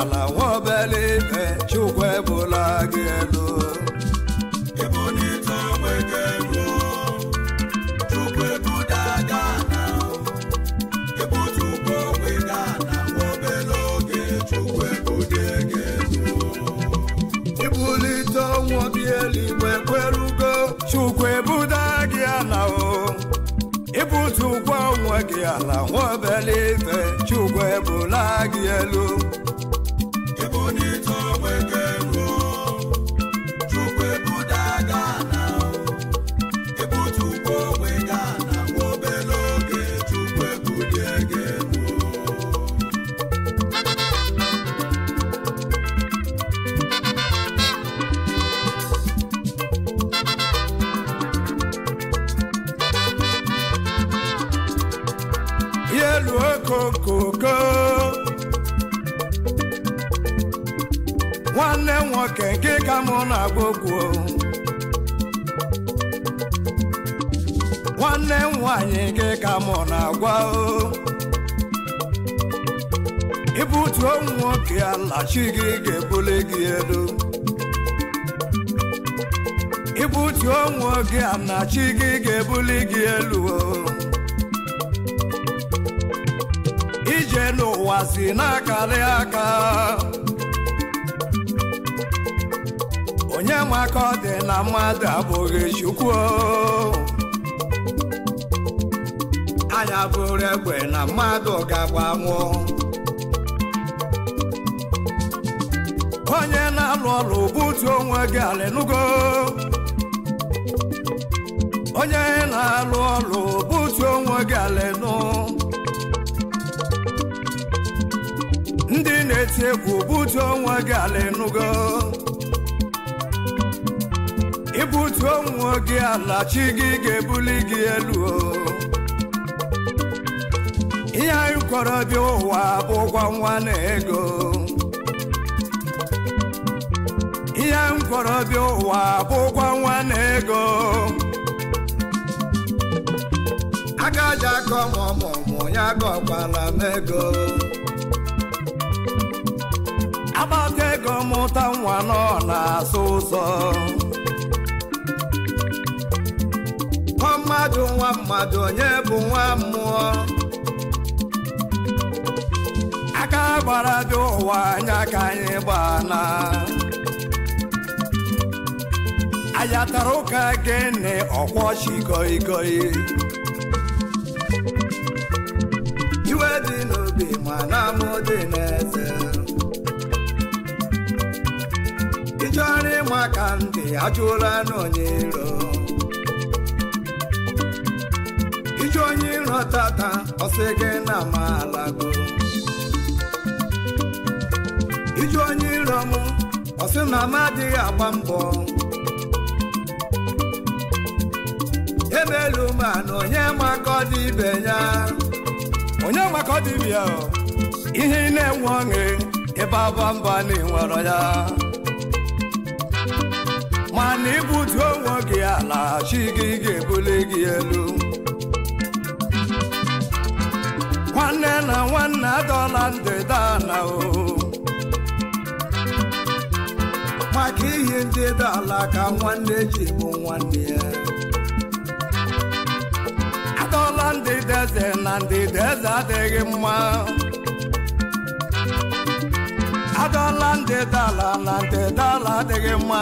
ala nwobele ibe chukwu ebula gị elu ibulite ọnwụ gị eluigwe chukwu ebuda gị ala o Ibu ụgwọ ọ gị ala nwa obere chukwu ebula gị elu nwanne nwoke nke ka mụ na-agba okwu nwanne m nwanyị nke ka mụ na-agwa o ibutuo m nwoke ala chi gị ga-ebuli gị elu ibutuo m nwoke ala chi gị ga-ebuli gị elu o ije n'ụwa si na-akarị aka onye nwe ọ dị na mmadụ abụghị chukwu anya abụrụ egbe na mmadụ ga-agbanwụ onye na-alụ ọrụ butu onwe gị ala onye na-alụ ọrụ butu onwe gị ala ndị na-eti egwu butu onwe gị ala enugo gị ala chi gị ga-ebuli gị elu ihe anyị kwọrọ bịa ụwa bụ ụgwọ nwa na ego ihe m kwọrọ bịa ụwa bụ ụgwọ nwa na ego aka aja akọ mọmọmụ ya gọkwala m ego agbata ego mụta nwa nọ na-asụ ụzọ mmadụ nwa mmadụ onye bụ nwa mmụọ aka gbara dị ụwa anya ka anyị gbana ayatara ụka gịnị ọkwọ goi goi iwe dị n'obi na mụ dị n'eze ịchọrọ ịma aka ndị ajụla n'onye iro isi onye iro tata ọsị gị na malago iji onye iro m ọsị na m adịghị agba mbọ ebelu mana onye maka ọ dị ibe ya onye maka ọ dị ibe ya ihe ị na-enwe ọṅụ ebe ba mba na ịnwero ya mana ibutu onwe gị ala chi gị ga-ebuli gị elu nwanne na nwanne adọla ndịda o maka ihe ndịda ala ka nwanne ji bụ nwanne ya adọla ndịda eze na ndịda eze adịghị mma adọla ndịda ala na ndịda ala adịghị mma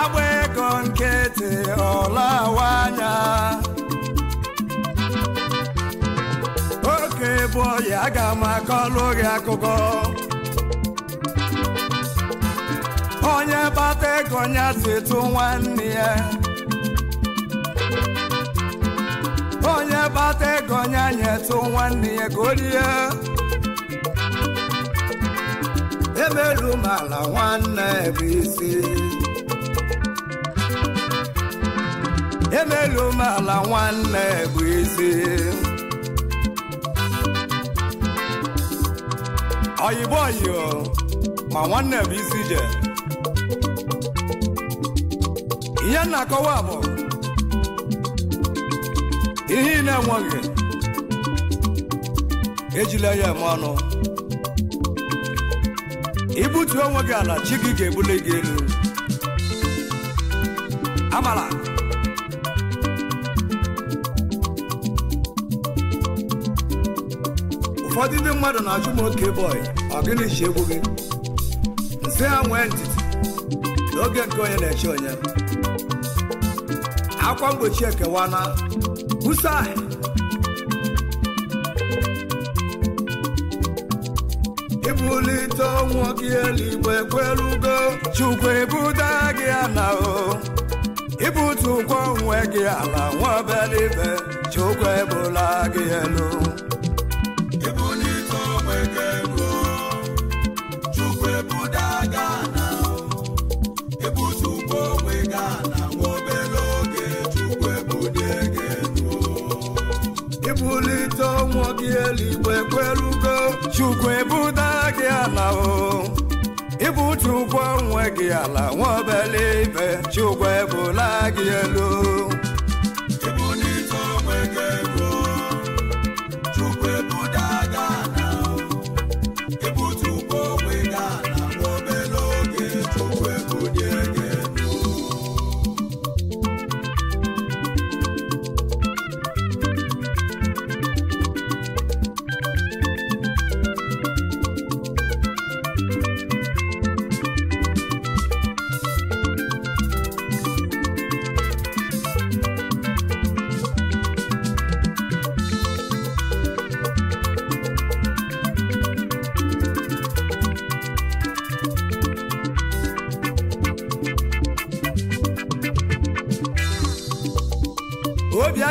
agba ego nkịtị awa anya na-ebu ọya aga m akọlụ gị akụkọ onye gbata ego ya si tụ nwanne ya onye gbata ego ya nyetụ nwanne ya ka o rie emelu m ala nwanne bụ isi emelu m nwanne bụ isi ọyịbụ ọyịọ, ma nwanne bụ isi ije ihe na-akọwa bụ ihe ị na-enweghị ejila ya eme ọnụ ibutu onwe gị ala chi gị ga-ebuli gị elu amala ụfọdụ ndị mmadụ na-ajụ m oke bọị ọ gịnị ji egwu gị nze ha nwee ntịtị n'oge nke onye na-eche onye akwa mgbochi ekewa na busa ibulite ọnwụ gị eluigwe ekwelugo chukwu ebuda gị ala o ibutu ụgwọ onwe gị ala nwa obere ibe chukwu ebula gị elu gị eluigwe ekwelugo chukwu ebuda gị ala o ịbụ chukwu onwe gị ala nwa obele ibe chukwu ebula gị elu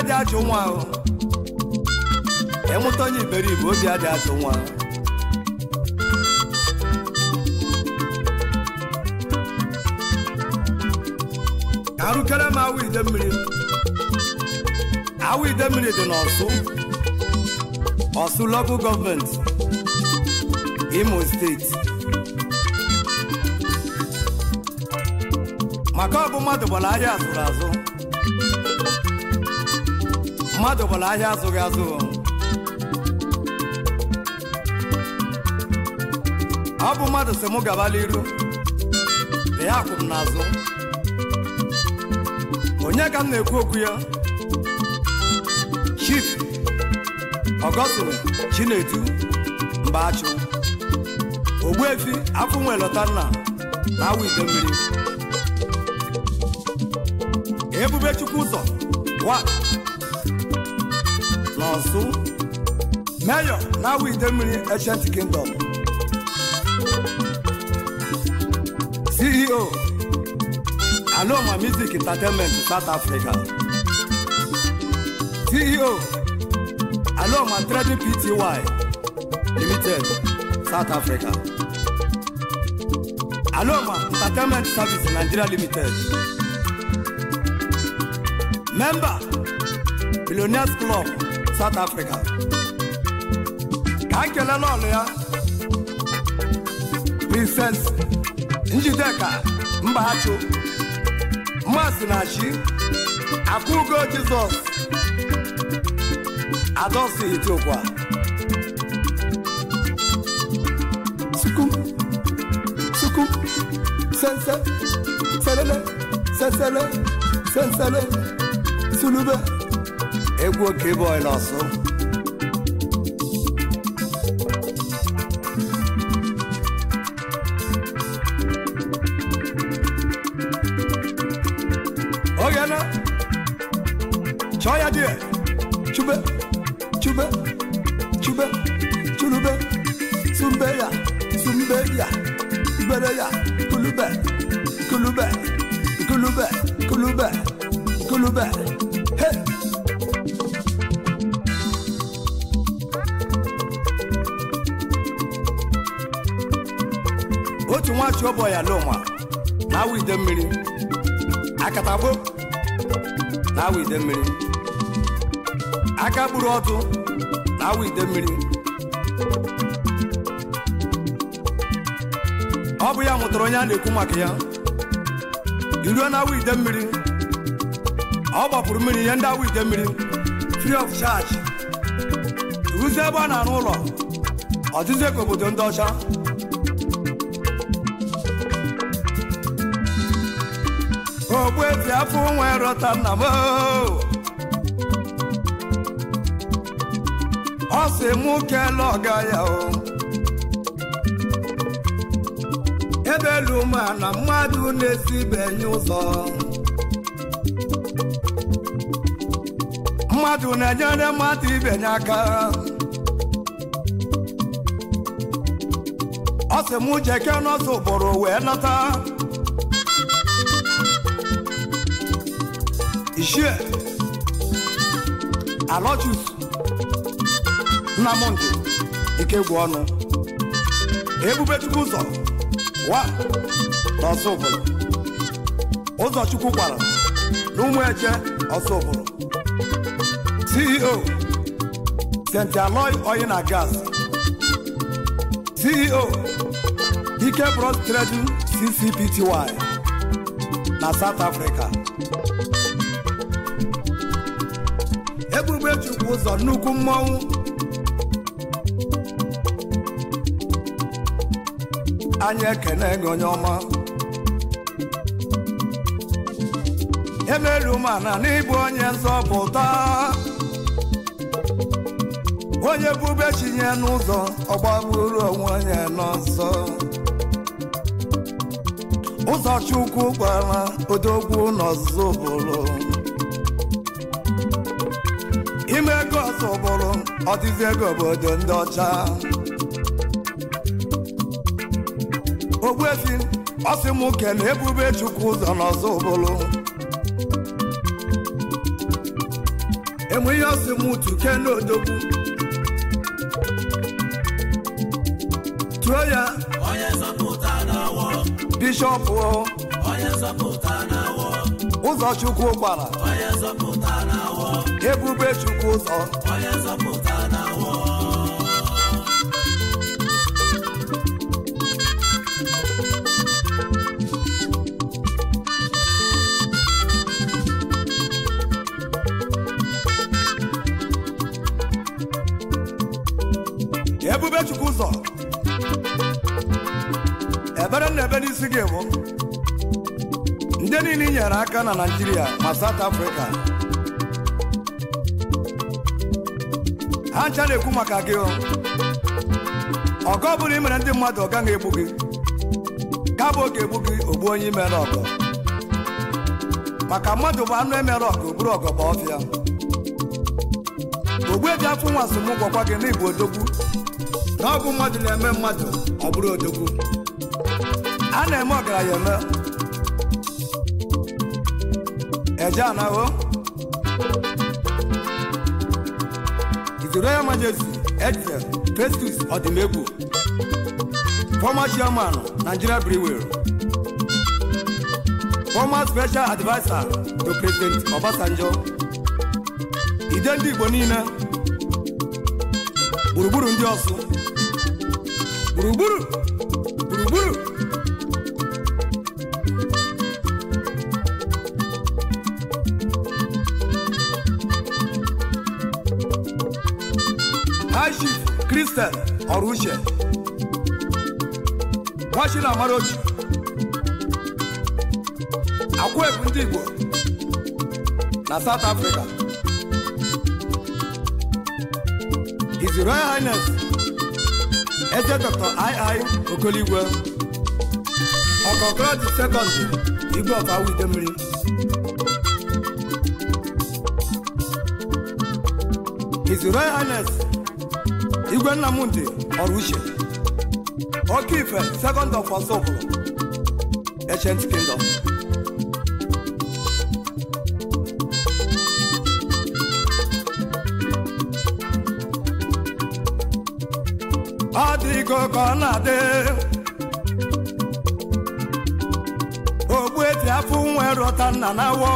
adị ajụ nwa ịmụta onye iberibe obi adị ajụ nwa ka arụkere m awa ide mmiri awa ide mmiri dị n'ọsụ ọsụ Local gọọmenti imo steeti maka ọ bụ mmadụ gbara ahịa azụrụ azụ mmadụ gbara ahịa azụghị azụ ọ bụ mmadụ sị mụ gabala iru na ya akwụ m n'azụ onye ka m na-ekwu okwu ya Chief Ọgọstine Chinedu Ogbu efi afọ nwe Lotanna na awa ido mmiri Ebube ụzọ wa Ọ̀ṣun Mayor Lawi Idemiri Ancient Kingdom CEO Aloma Music Entertainment South Africa CEO Aloma Trading Pty Limited South Africa Aloma Entertainment Service Nigeria Limited Member Billionaires Club South Africa ka kelele ọlụ ya Princess Njideka achụ Mmasị na-achị Akụgo Jizọs Adosi Itiokwa Sukum Sukum Sense Selele Sensele Sensele Sulube egwu oke boy n'ọsụ oge na chọọ ya die chube chube chube chulube sumbe ya sumbe ya ibere ya kulube kulube kulube kulube kulube hey otu nwachi ọbọ ya n'ụwa na-awụ ide mmiri akatagbo na-awụ ide mmiri aka gburu ọtụ na-awụ ide mmiri ọ bụ ya mụtara onye a na-ekwu maka ya iruo na-awụ ide mmiri ọ gbapụrụ mmiri ihe ndị awụ ide mmiri free of charge ruzie ebe a na-arụ ụlọ ọdịzi ka obodo ndị ọcha ogbuezi afọ nwe rọta nna m oh. ọ sị mụ kele ọga ya o oh. ebelu ma na mmadụ na-esibeghị ụzọ mmadụ na-enyere mmadụ ibenye aka ọ sị mụ jeke n'ọsọ ụbụrụ wee nata shie alojus Nnamdi ikegwu ọnụ ebubechukwu ụzọ wa n'ọsọ obodo ụzọchukwu gwara na ụmụ eje ọsọ obodo ceo st aloy oil gas ceo ike bros trading ccpty na south africa ebube chukwu ụzọ nnukwu mmọnwụ anyị ekene gị onye ọma emelu na n'ịbụ onye nzọpụta onye bube chinye n'ụzọ ọgbagburu onwe onye n'ọzọ ụzọ chukwu gbara odogwu n'ọzụzụ bụrụ ọsọ bụrụ ọdịzi ego obodo ndị ọcha Ogbuezi ọsị m na ebube chukwu ụzọ n'ọsọ bụrụ enwe ihe ọsị m tuke n'odogwu tuo ya bishọpụ ụzọ chukwu gbara ebube chukwu ụzọ ebube chukwu ụzọ ebere na ebe n'isi gị bụ ndị niile nyere aka na naijiria ma South Africa ha ncha na-ekwu maka gị ọgọ bụrụ imere ndị mmadụ ọ gaghị egbu gị ka bụ oge egbu gị ogbu onye imere ọgọ maka mmadụ bụ anụ emere ọgọ bụrụ ọgọ ọfịa ogbu ebi afọ nwa asụm gwọkwa gị na igbo odogwu na ọ mmadụ na-eme mmadụ ọ bụrụ odogwu a na-eme ọgaranya eme eje His Royal Majesty Edson Festus Odimegwu, former chairman Nigeria Brewer, former special advisor to President Obasanjo, ide ndị Igbo niile gburugburu ndị Buru, gburugburu gburugburu Christian Ọ̀rúnṣẹ̀ Washington Amarochi Akwaebu ndị Igbo na South Africa His Royal Highness Eze Dr. I.I. Okoligwe Ọkọkrọti Sekọndị Igwe Ọkawa Idemmiri His Royal Highness igwe nnamdị ọrụ uche oke ife second of asọpụrụ ancient kingdom ọ dịgo ka ọ na-adị afọ nwere ọta nna na awọ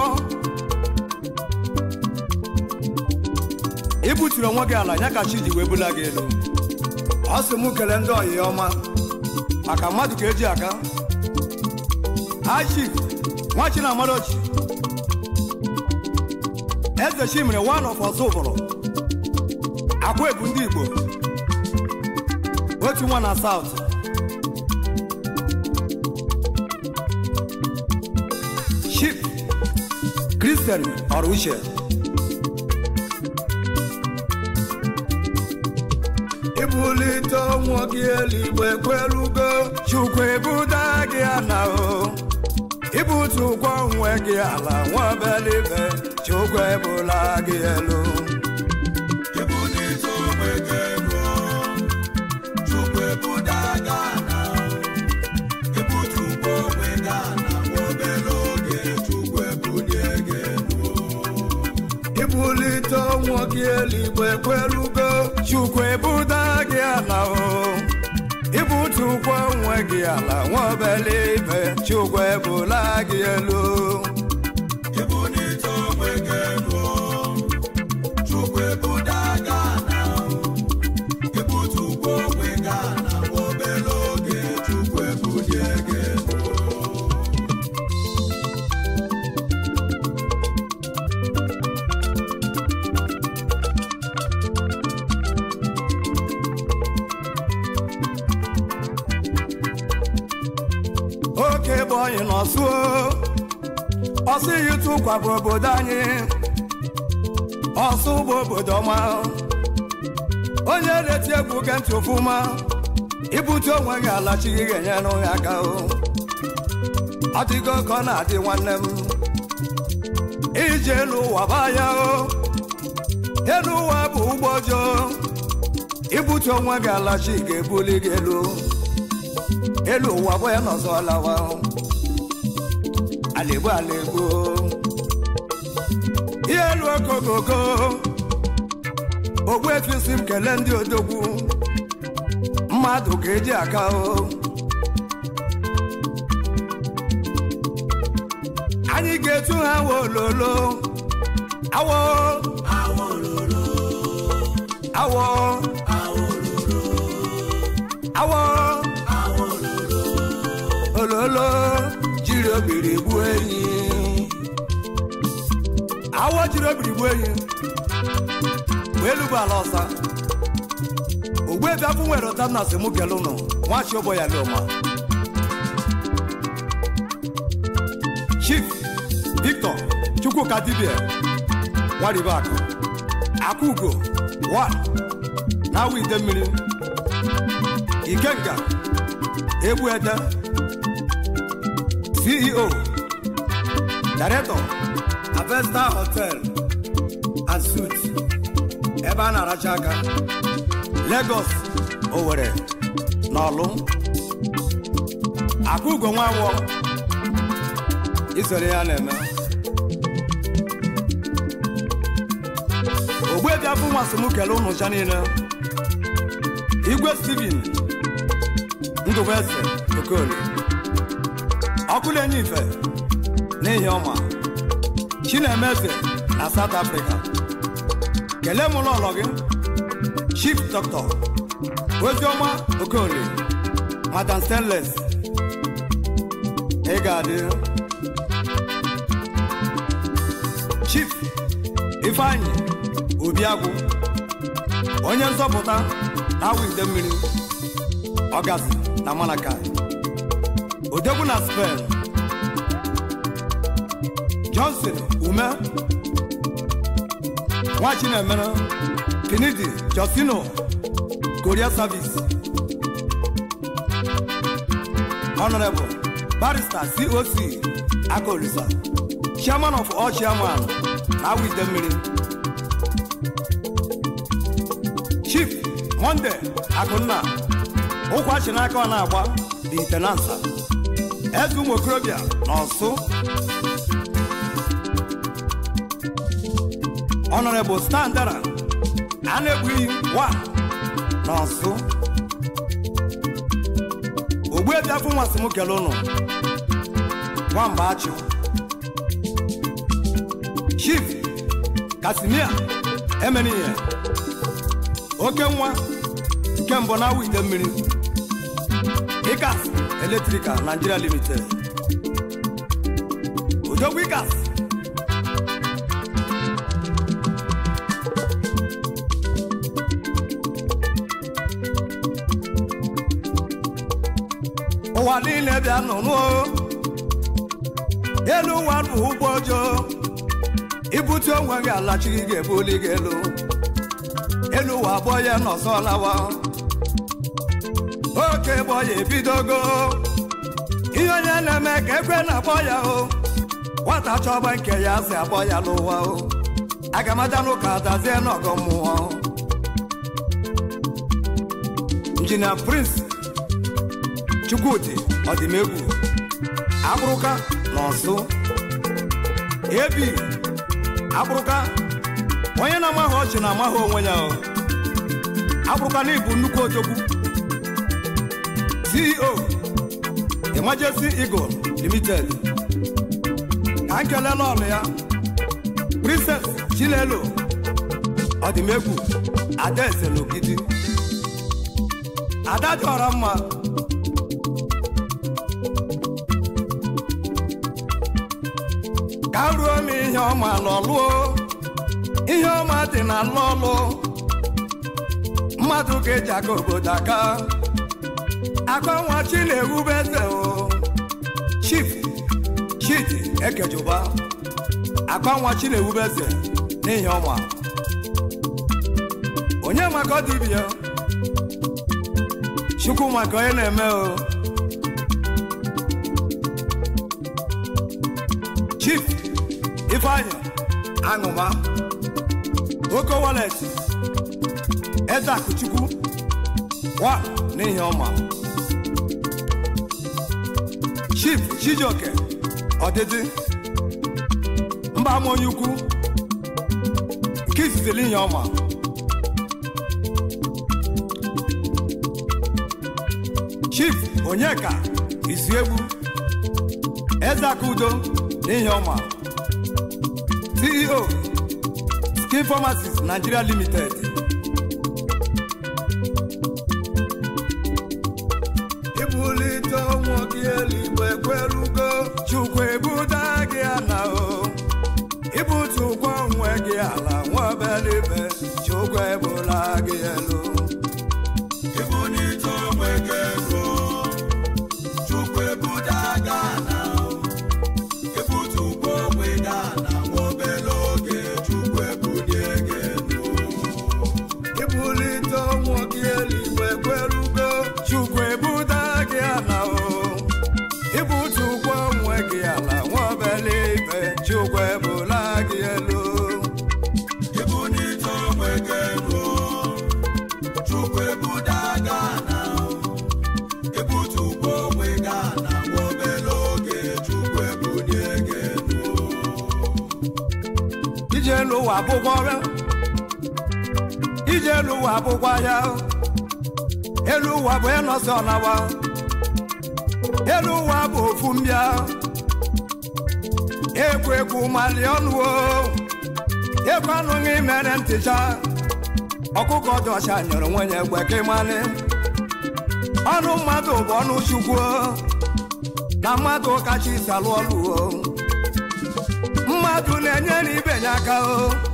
ị buturu onwe gị ala ya ka chi ji wee bula gị elu ọ sị m kele ndị ọyị ọma maka mmadụ ka eji aka nwa chi na amarochi eze chimere one of ọzọ ụbọrọ akwa ebu ndị igbo otu nwa na south Christian uche. bulite ọnwụ gị eluigbo ekwelugo chukwu ebuda gị ana o ibutu ụkwụ onwe gị ala nwabelibe chukwu ebula gị elu ibulite ọnwụ gị eluigbo ekwelu chukwu ebuda gị ala ịbụtu ụkwụ onwe gị ala nwa obele ibe chukwu ebula gị elu onye n'ọsụo ọsụ iyi tụkwa bụ obodo anyị ọsụ bụ obodo ọma onye na-eti egwu ge ntị ofụma ibute onwe gị gị ga-enyere ya aka ọ dịgo ka ọ na-adị nwanne m ije elu ụwa baa ya elu ụwa bụ ụgbọ ọjọọ ibute onwe gị alachi ga-ebuli gị elu elu ụwa bụ ya n'ọzọ lawa àlèbó àlèbó ihe elu okooko ogbu etu isi m kelee ndị odogwu mmadụ ga-eji aka o anyị ga-etu ha wololo awo awo awo ololo jiri obiri gbuo enyi awọ jiri obiri gbuo enyi wee ala ọsa ogbu ebe afọ nwere ụta na asị mụ nwachi ụbọ ya lụma Chief Victor Chukwuka dibia nwaribakụ Akugo wa na awụ ide mmiri Ikenga egbu ede ceo director avesta hotel and suits ebe a na-aracha aka Lagos Owere na ọlụ, Akugo Nwanwọ isoro ya na-eme ogbuebiabụ nwasom unu ụnụcha niile igwe Steven Ndụbụeze Okoli ọkụlenye ife n'ihi ọma chinemeze na South Africa kelee mụrụ ụlọ gị chief dọkịta ozioma okorie madam stanless ị ga-adị chief ifeanyị obiagwụ onye nzọpụta na-awụ ide mmiri ọgasị na Malakai odegwu na johnson ume nwachinemere finidi josino korea service honorable barrister coc akolisa chairman of all chairman na wide mmiri chief monde akụnna ụkwa chi n'aka ọ na eze ụmụ okorobịa n'ọsụ bụ standara a na-egbughị wa n'ọsụ ogbuebiafọ nwasị afọ kele ụnụ nwamba achụ chief kasimia emenihe oke nwa nke mbụ na awụ ite mmiri Wikas Electrical Nigeria Limited Ojo Wikas ụwa niile bịa nụnụ elu ụwa bụ ụgbọ ọjọọ ibute onwe gị alachi gị ebuli gị elu elu ụwa abụọ ya nọsọ lawa oke gbọ ya ebidogo ihe onye na-eme ka ekwe na-akpọ ya o nwata chọba nke ya si akpọ ya n'ụwa o agamaja n'ụka dazie n'ọgọ mmụọ injinia prince chukwudi ọdịmegwu akpụrụka na ọsụ ebi akpụrụka onye na-amaghị ọchị na amaghị onwe ya o akpụrụka na ibu nnukwu otogwu. CEO Emergency Eagle Limited ka nkele ọnụ ya Princess Chilelo ọdịmegwu adaeze n'ogidi ada chọrọ mma ka ruo m ihe ọma n'ọlụọ ihe ọma dị na n'ọlụ mmadụ ga-eji aka obodo aka akanwa chi na-ewube eze o chief chidi ekejuba akanwa chi na-ewube eze n'ihi ọma onye maka ọdịbịa chukwu maka onye na-eme o chief Ifeanya aṅụma oke waleti eze akụchukwu wa n'ihi ọma Chief Chijioke ọdịdị mba ama onye ukwu nke izizi linye ọma Chief Onyeka Izuegbu Ezeaka Udo linye ọma CEO Skin Pharmacies Nigeria Limited Again. abụghị ọrịa ije elu ụwa abụghị ahịa elu ụwa bụ ịnọsị ọnawa elu ụwa bụ ofu mbịa egwu egwu mali ọnụwo egwu anụghị mere ntịcha ọkụkọ dị ọcha nyere nwenye egwe ka ịmanị ọnụ mmadụ bụ ọnụ chukwu na mmadụ kacha isi alụ ọlụ mmadụ na-enye na ibe ya aka o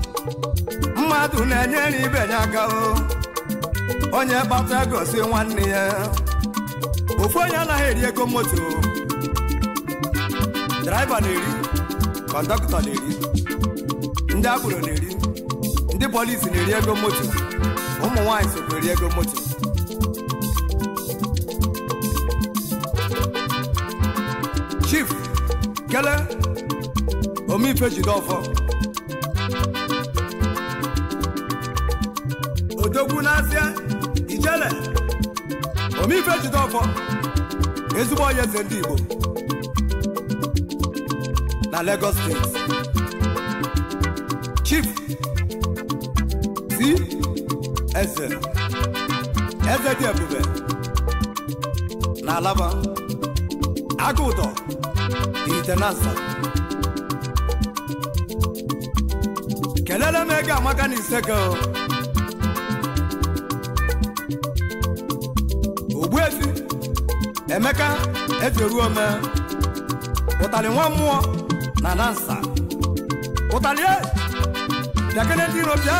mmadụ na-enyere ibe ya aka onye kpata gosi nwanne ya ofu onye anaghị eri ego moto draiva na-eri kọndọktọ na-eri ndị agboro na-eri ndị polisi na-eri ego moto ụmụ nwaanyị sokwa eri ego moto chief kele omeife jide ọfọ egwu n'azịa ijele omife jide ezigbo onye eze ndị Igbo na Lagos steeti Chief si eze eze dị ebube na alaba aka itenasa kelele m ego amaka na ogbuefi emeka efioruo ome ụtalị nwa mmụọ na dansa ụtalị e, bịakene ndị iro bịa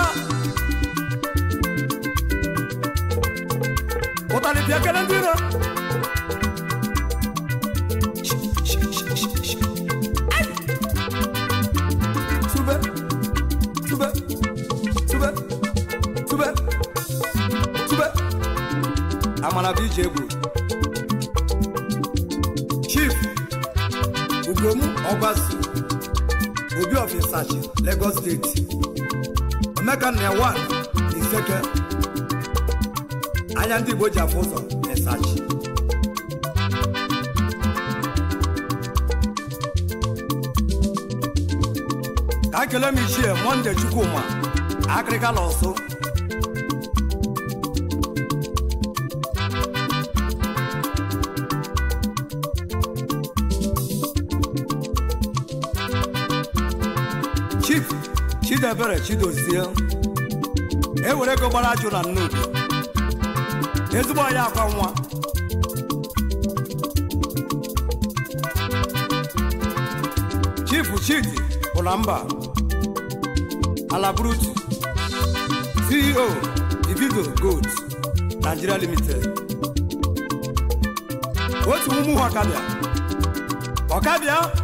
ụtalị bịakene ndị iro Chief chief ugom ọgbasu obi of Isachi Lagos steeti emeka na ewan iseke anya ndị Igbo ji afụ ụzọ Isachi ka ekele m ichie monde Chukwuma akịrịka na ọsụ ebere chidozie ewere ego gbara ajụ na Nnukwu, ezigbo anyị akwa nwa chifu chidi ụlamba alabrutu ceo ivigo gold nigeria limited otu ụmụ ha ọkabịa ọkabịa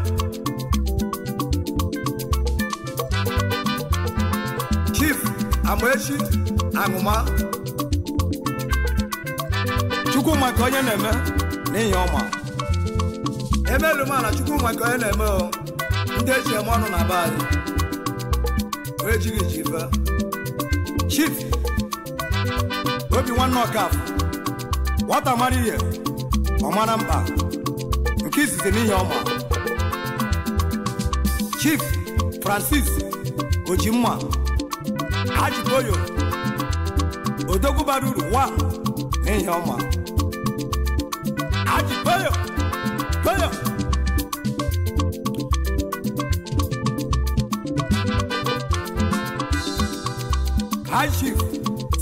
chief amaechi aṅụma chukwu maka onye na-eme n'ihi ọma emelu mana chukwu maka onye na-eme o ndị eji eme ọnụ na be anyị wee jiri ji chief obi nwanne ọkafọ nwata mara ihe ọmara mba, nke izizi n'ihi ọma chief francis ojimma ajitoyo odogwu bara uru nwa n'ihi ọma ajitoyo toyo kashif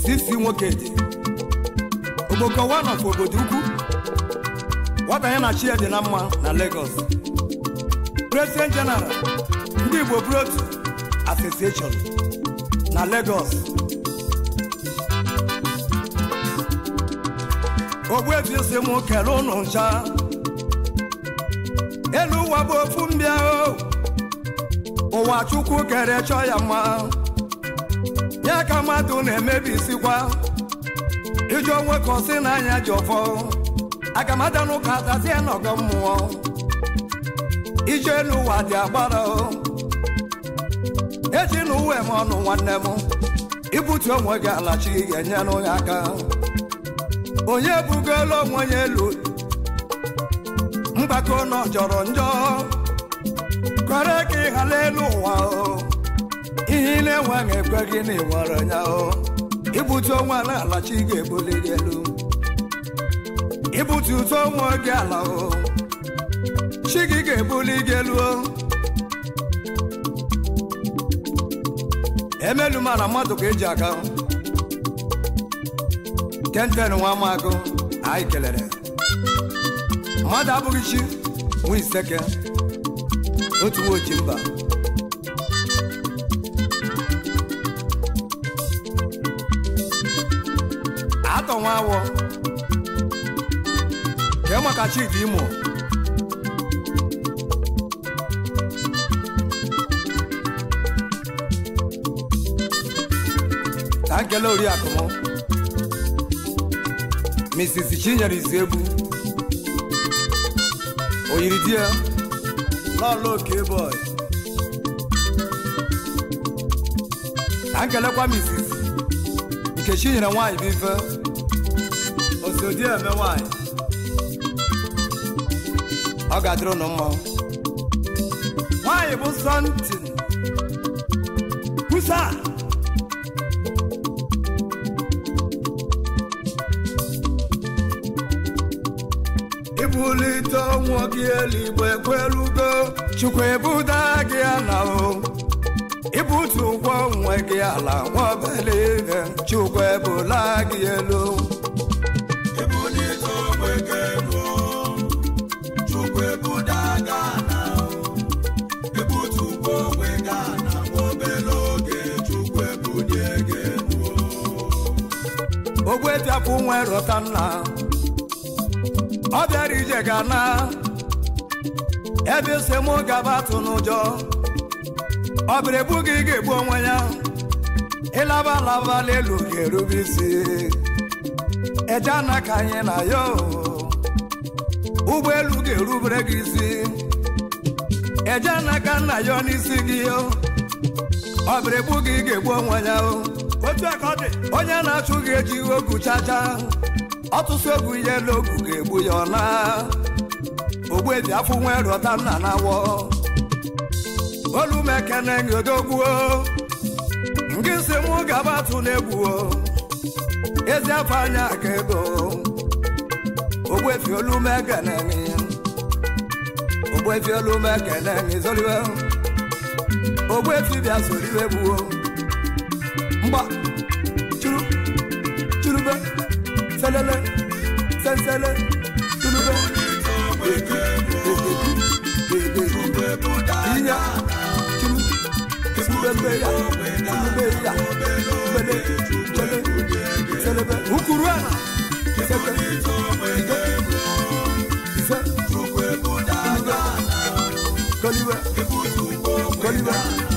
sisi nwoke dị ogboko one of obodo ukwu nwata na chi na mma na Lagos president general ndị Igbo Brot Association na Lagos ogbuefi si m kere ụnụ ncha elu ụwa bụ ofu mbịa ụwa chukwu kere chọ ya mma ya ka mmadụ na-emebisikwa iji onwe ka ọsị n'anya ji ọfọ agamada n'ụka atazie n'ọgọ mmụọ ije n'ụwa dị agbara ejila uwe m ọnụ nwanne m ibutu onwe gị alachi ga-enyelu ya aka onye bugolu onwe ya elu mgbako nọ jọrọ njọ kwere ka ị ghara elu ụwa ihe ị na-enweghị ekwe gị na ịwere ya ibutu onwe ala alachi ga-ebuli gị elu ibutu uto onwe gị ala chi gị ga-ebuli gị elu emelu mara mmadụ ka eji aka na nwa amagụ anyị kelere mmadụ abụghị chi nwa iseke otu nwoji mba atọ nwa awọ kee maka chidi imo na nkele oriakụ Mrs. Chinyere Izuegbu oyiri di ya n'ọla oke boy na nkelekwa Mrs. Nkechi nyere nwaanyị bụ ife osodi eme nwaanyị ọ ga-adịrị ụnụ mmanwụ nwaanyị bụ sọntin kwusa ibulite ọnwụ gị elu ekwelugo chukwu ebuda gị ala o ibutu ụgwọ onwe gị ala nwabele ihe chukwu ebula gị elu ogwe dịapụ nwere ọta nna ọ bịara ije ga na ebe esemụ gaba atụ n'ụjọ ọ bịara ebu gị ga-egbu onwe ya ịlaba alaba n'elu ga-erube isi eje na ka anyị na ya ụgbọelu ga-erubere gị isi eje na ka nna ya n'isi gị ọ bịara ebu gị ga-egbu onwe ya onye na-achụ gị eji ogu chacha ọtụtụ egwu ihe n'ogwu ga-egbu ya ọla eji afọ nwere ọta nna na-awọ olumekene nyodogbuo nke si mụ gaba atụ na-egbuo ezi afọ anya ka ego ogbuefi olumekene ogbuefi olumekene zoliwe ogbuefi bịa zoliwe gbuo mgba selele sensele tulube inya chulu ya ya